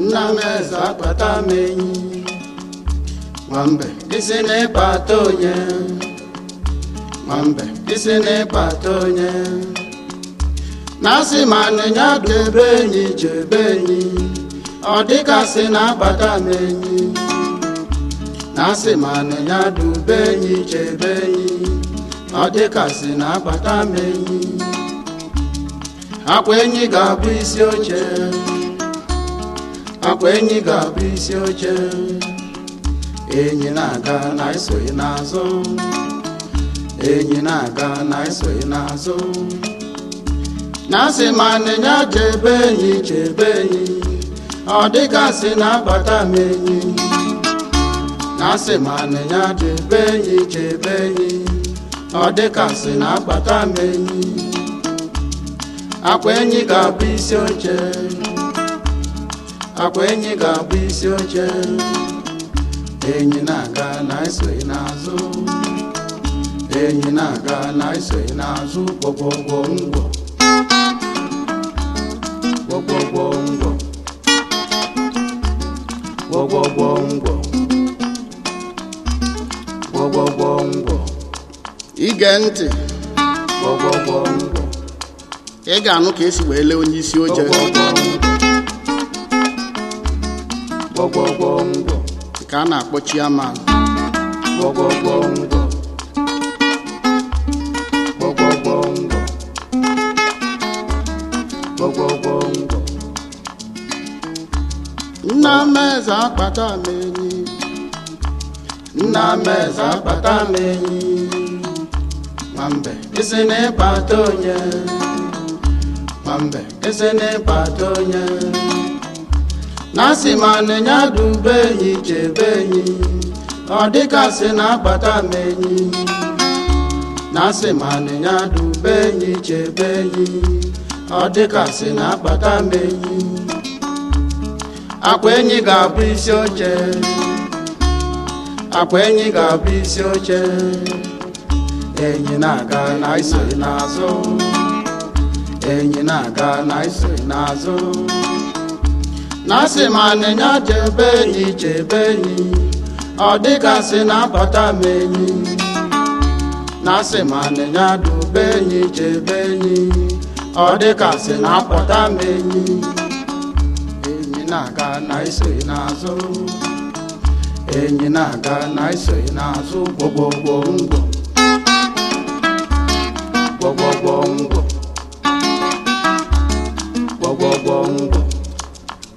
nna eze akpata m enyi nwambe isi na-ịkpata onye nwambe isi na-ịkpata onye na-asị ma anịnya ebe enyi ji enyi ọ dịkasị na-akpata m enyi na-asị ma anịnya dị enyi ji enyi ọ dịkasị na-akpata m enyi akwa enyi ga-abụ isi oche akwa enyi ga-abụ isi oche enyi na-aga na esoghị n'azụ enyi na-aga na esoghị n'azụ na-asị ma nịnya jebe enyi chebe enyi ọ dịgasị na-abata m enyi na-asị ma nịnya jebe enyi chebe enyi ọ dịgasị na-abata m enyi akwa enyi ga-abụ isi oche akwa enyi ga-abụ isi oche enyi na-aga na-esoghị n'azụ enyi na-aga na-esoghị n'azụ kpọkpọgwọ ngwọ kpọkpọgwọ ngwọ kpọkpọgwọ ngwọ kpọkpọgwọ ngwọ ige ntị kpọkpọgwọ ngwọ ị ga-anụ ka esi wee lee onye isi oche gwọgwọgwọ ka a na-akpọ chiaman gwọgwọgwọ nna m eze akpata m nna m akpata m enyi nwambe na ịkpata onye nwambe isi na ịkpata onye na si ma nenya dum be enyi chebe ọ dịka na-akpata m enyi be enyi ọ na-akpata m enyi akwa enyi ga-abụ isi oche akwa enyi na-aga na enyi na-aga na iso n'azụ na asị ma nịnya chebe enyi ọ na abata m enyi na asị enyi ọ dịgasị na m enyi enyi na-aga na iso n'azụ enyi na-aga na n'azụ gwogwogwo ngwo gwogwogwo ngwo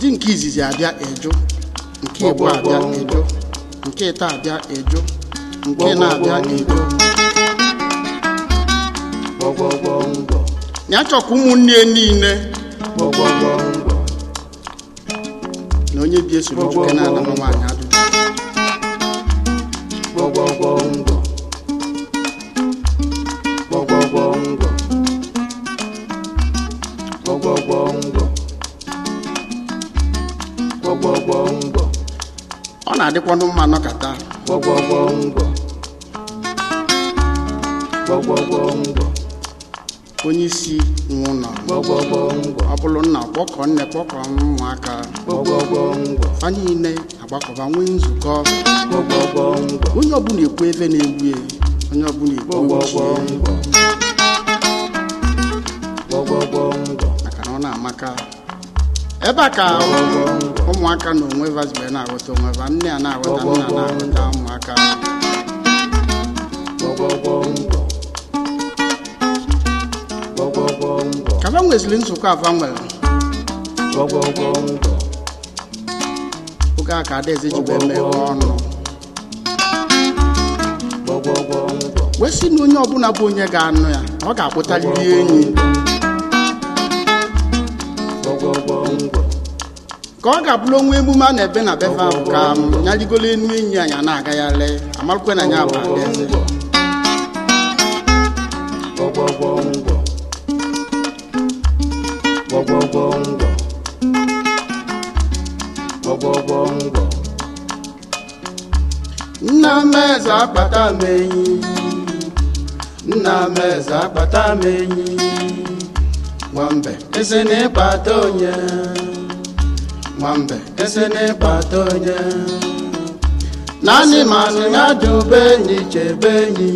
di nke izizi abịa eju nke igbo abịa eju nke ịta abịa eju nke na-abịa eju ya chọkwa ụmụnne niile na onye bi esoro juke na-anama nwaanyị adụ adịkwanụ mma nọkata onye isi nwe ụlọ ọ bụrụ nna kpọkọ nne kpọkọ ụmụaka fa niile agbakọba nwee nzukọ onye ọbụla ekwu ebe na-egbu e onye ọbụla ekwu maka na ọ na-amaka ebe a ka ụmụaka na onwe vazibe na-aghọta onwe va nne a na-aghọta nna na-aghọta ụmụaka ka ba nweziri nzukọ afa nwere oge a ka adaeze jibe emeghe ọnụ wee na onye ọbụla bụ onye ga-anụ ya ọ ga-akpụtarịrị enyi ka ọ ga-abụrụ onwe emume a na-ebe na befe ka ya rigolo enu enyi anyị na-agagharị ala na ya bụ abịazi nna meze akpata m nna meze akpata nwambe nwambe esi n'ịkpata onye naanị manụ ya dube enyi chebe enyi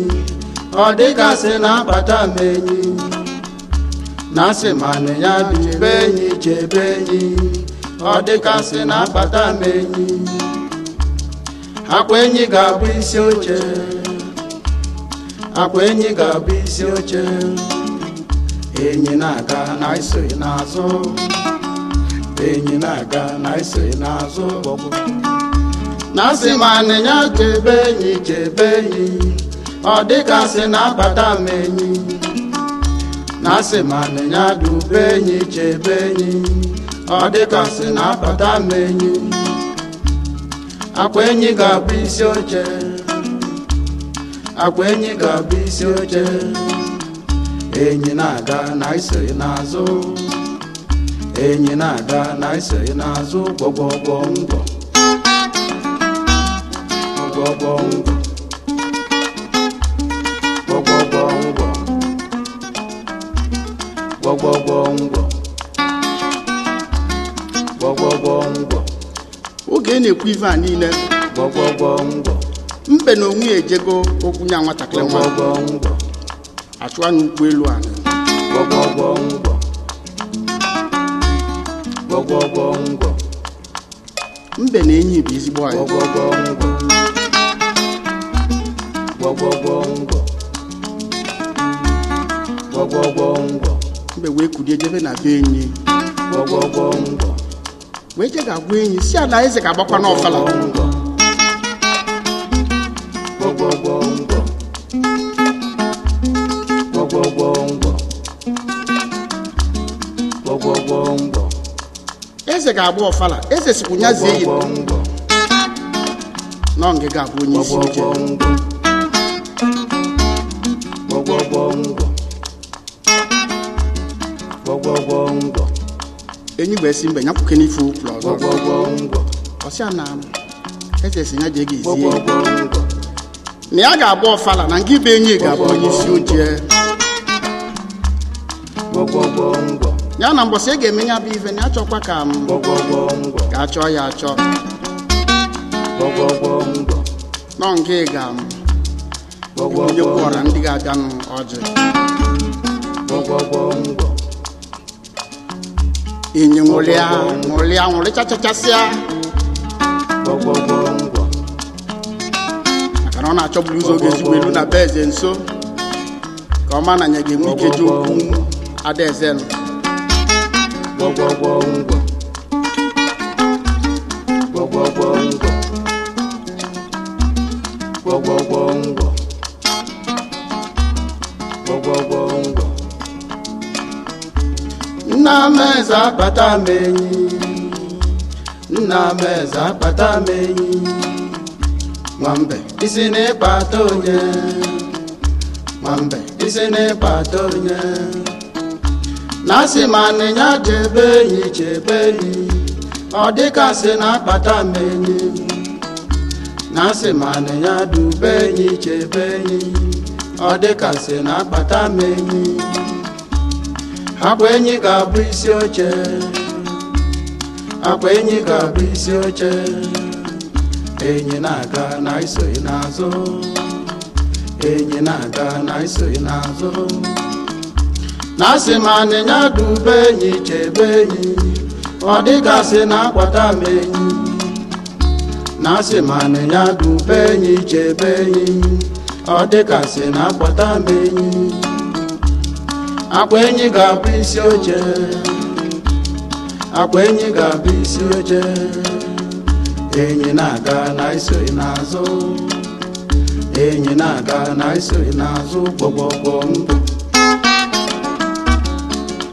ọ dịgasị na akpata m enyi na sị manụ ya dube enyi chebe enyi ọ dịgasị na akpata m enyi akwa enyi ga-abụ isi oche akwa enyi ga-abụ isi oche enyi na-aga na iso n'azụ enyi na-aga na ise n'azụ na asị ma anịnya chebe enyi chebe enyi ọ dịka sị na-abata m enyi na asị ma anịnya dube enyi chebe enyi ọ dịka sị na-abata m enyi akwa enyi ga-abụ isi oche akwa enyi ga-abụ isi oche enyi na-aga na ise n'azụ enyi na-ada na n'azụ gbọgbọgbọ ngọ oge na-ekwu ife a niile mbe na onwe ejego okwu nwatakịrị nwa achụwa n'ụgbọelu a ala mbe na enyi bụ ezigbo anyị mbe wee kulie jebe na be enyi gwọgwọgwọ wee je ga-agwa enyi si ala eze ga-agbakwa n'ọfala eze ga-agba ọfala eze sikwu nyazie ya nọ ngịga abụ onye isi nje enyi gba esi mgbe nyakwuke n'ife ukwu ọzọ ọsịa na eze si ya jee ga na ya ga-agba ọfala na nga ibe enyi ga-abụ onye isi ojie ya na mbọsị e ga-eme ya bụ ife na achọkwa ka m ka achọ ya achọ nọ nke ga onye kwọra ndị ga-abịanụ ọjị inye ṅụrịa nwụrị ṅụrịchachachasịa maka na ọ na-achọburu ụzọ oge ezigbo elu na be eze nso ka ọ ma na anya ga-enwe ike ji okwu adaeze nụ gwọgwọgwọngwọ nna akpata m enyi nna m eze nwambe isi onye nwambe isi onye na asị ma anịnya jebe enyi enyi ọ dịka sị na akpata m enyi na enyi enyi ọ dịka sị na akpata m enyi akwa enyi ga-abụ isi oche akwa enyi ga-abụ isi oche enyi na-aga na isoghị n'azụ enyi na-aga na isoghị n'azụ na asị m anịnya dube enyi chebe enyi ọ dịgasị na akpata m enyi na enyi ọ dịgasị na m akwa enyi ga-abụ isi oche akpa enyi ga-abụ isi oche enyi na-aga na isori n'azụ enyi na-aga na n'azụ gbọgbọgbọ ndụ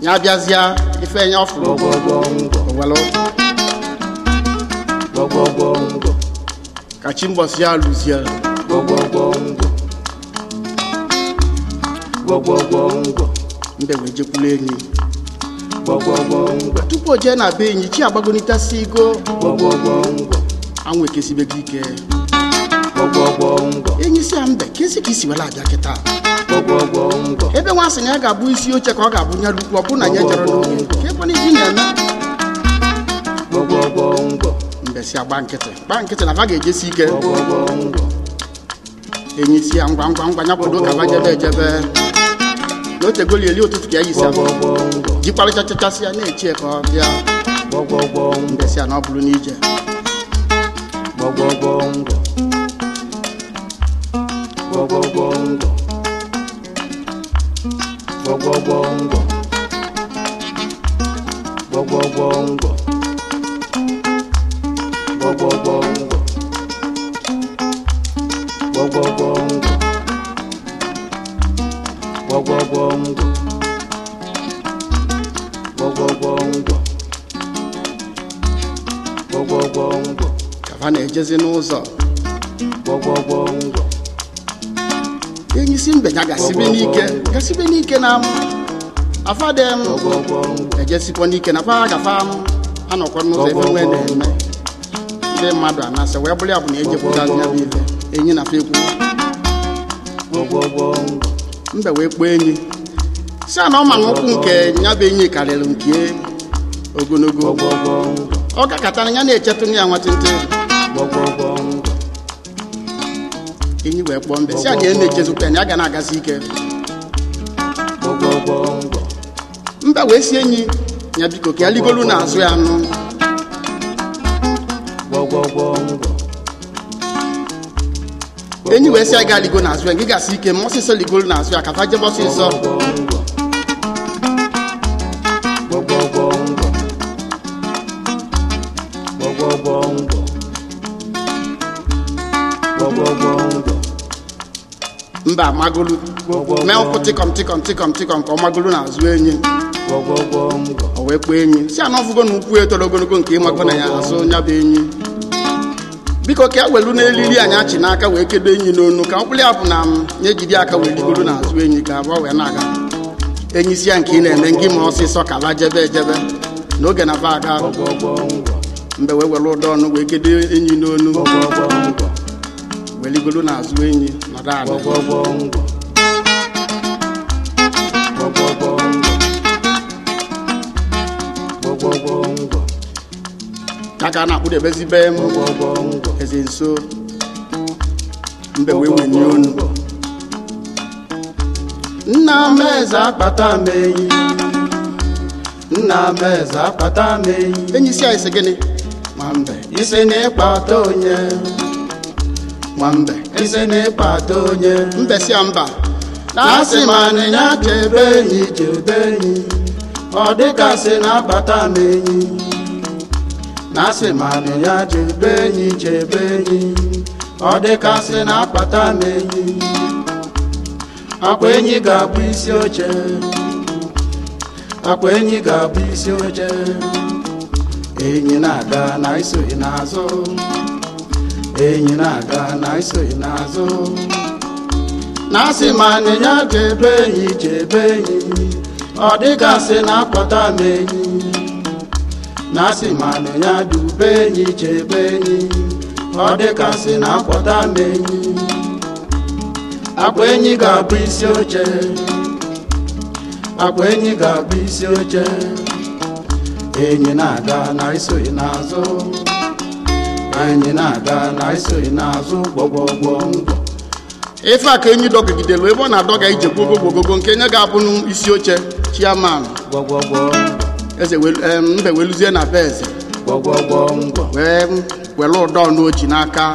ya bịazịa ife ya ọfụrụ owelu ka chi mbọsị ya lụzie mbe wee jekwula enyi tupu o jee na be enyi chi agbagonitasi igo anwụ ekesibego ike enyi si ya mbe esi ka isiwela abịa kịta ebe nwa sị na ya ga-abụ isi oche ka ọ ga-abụnyere ukwu ọ bụrụ na ya jere n'oge ngwọ ka ebe iji na-eme mbesi agba nkịtị gba nkịtị na ha ga-ejesi ike enyi si ya ngwa ngwa ngwa ya bodo ka ba jebe ejebe na otegoli eli ụtụtụ ka ya yisi jikparịchachachasị ya na echi ka ọ bịa mbesi ya na ọ bụrụ n'ije gwọgwọgwọ ngwọ gwọgwọgwọ ngwọ gwọgwọgwọngwọ gwọgwọgwọngwọ gwọgwọgwọngwọ ha na-ejezi n'ụzọ enyi isi mbeya gasibe n'ike gasibe n'ike na afadem ejesikwa n'ike na faa gafa anọkwa n'ụzọ ebe nwe na-eme ndị mmadụ anasị wee bụrụ ya bụ na ejepụta bụ ife enyi na fekwu mbe wee kpoo enyi si a na ọma nkwụ nke bụ enyi karịrị nke ogologo ọ kakatara ya na-echetụ ya nwatịntị enyi wee kpọọ mbe si a ga e na-echezụta ya ga na-agazi ike mba wee si enyi ya biko ka ya ligolu n'azụ ya anụ enyi wee si a ga aligo n'azụ ya gị gasị ike ma ọsịsọ ligolu n'azụ ya ka fa jebe ọsịsọ mba amagolu mee ụkwụ tịkọm tịkọm tịkọm tịkọm ka ọ magolu na azụ enyi o wee kpọọ enyi si anọ fụgo na ukwu etoro ogologo nke ịmago na ya azụ nya bụ enyi biko ka e welu n'elili anyị achị n'aka wee kedo enyi n'onu ka mkpụrụ ya bụ na m nye jiri aka wee rigoro na azụ enyi ka abụọ wee na-aga enyi isi ya nke ị na-eme ngị ma ọsịsọ ka la jebe ejebe n'oge na ba aga mgbe wee were ụdọ ọnụ wee kedo enyi n'onu na azụ enyi nọdụ ala ya ka a na-akpụdebezi be m eze nso mbe wee wenye onu nna m eze akpata m enyi nna m eze akpata m enyi enyi si anyị si gịnị ma mbe isi na ịkpata onye nwambe eze na-ekpata onye mbesia mba na-asị ma nịnya chebe enyi chebe enyi ọ dịkasị na-abata m enyi na-asị ma nịnya chebe enyi chebe enyi ọ dịkasị na-akpata m enyi akwa enyi ga-abụ isi oche akwa enyi ga-abụ isi oche enyi na-aga na iso n'azụ enyi na-aga na iso n'azụ na-asị ma na ya ga-ebe enyi jebe enyi ọ dịgasị na-akpata m enyi na-asị ma na ya dube enyi jebe enyi ọ dịgasị na-akpọta m enyi akpa enyi ga-abụ isi oche akpa enyi ga-abụ isi oche enyi na-aga na iso n'azụ anyị na-aga na anyị n'azụ gbọgbọgbọ ndụ ife aka enyi dọgidelu ebe ọ na-adọga ije gbogogogogo nke nye ga-abụ n'isi oche chiaman eze mbe weluzie na be eze were ụdọ n'oji n'aka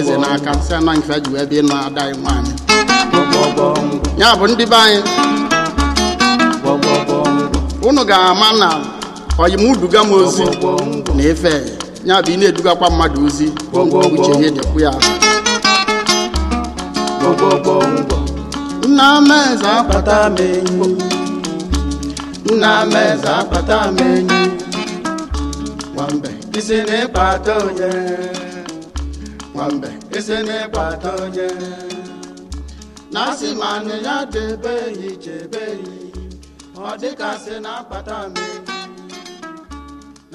eze n'aka nsị anaghị mfe ji wee bịa ịna ada anyị nwaanyị ya bụ ndị be anyị unu ga-ama na oyimuduga m ozi na ife ya bụ ị na-edugakwa mmadụ ozi uche ihe dịkwụ ya nna akpata m enyi nna akpata m enyi nwambe na onye nwambe asị ma ya debe ihe, ọ na akpata m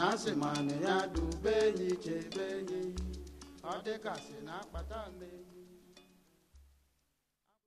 na asị mana ya dube enyi chebe enyi ọ dịka si na akpata mmiri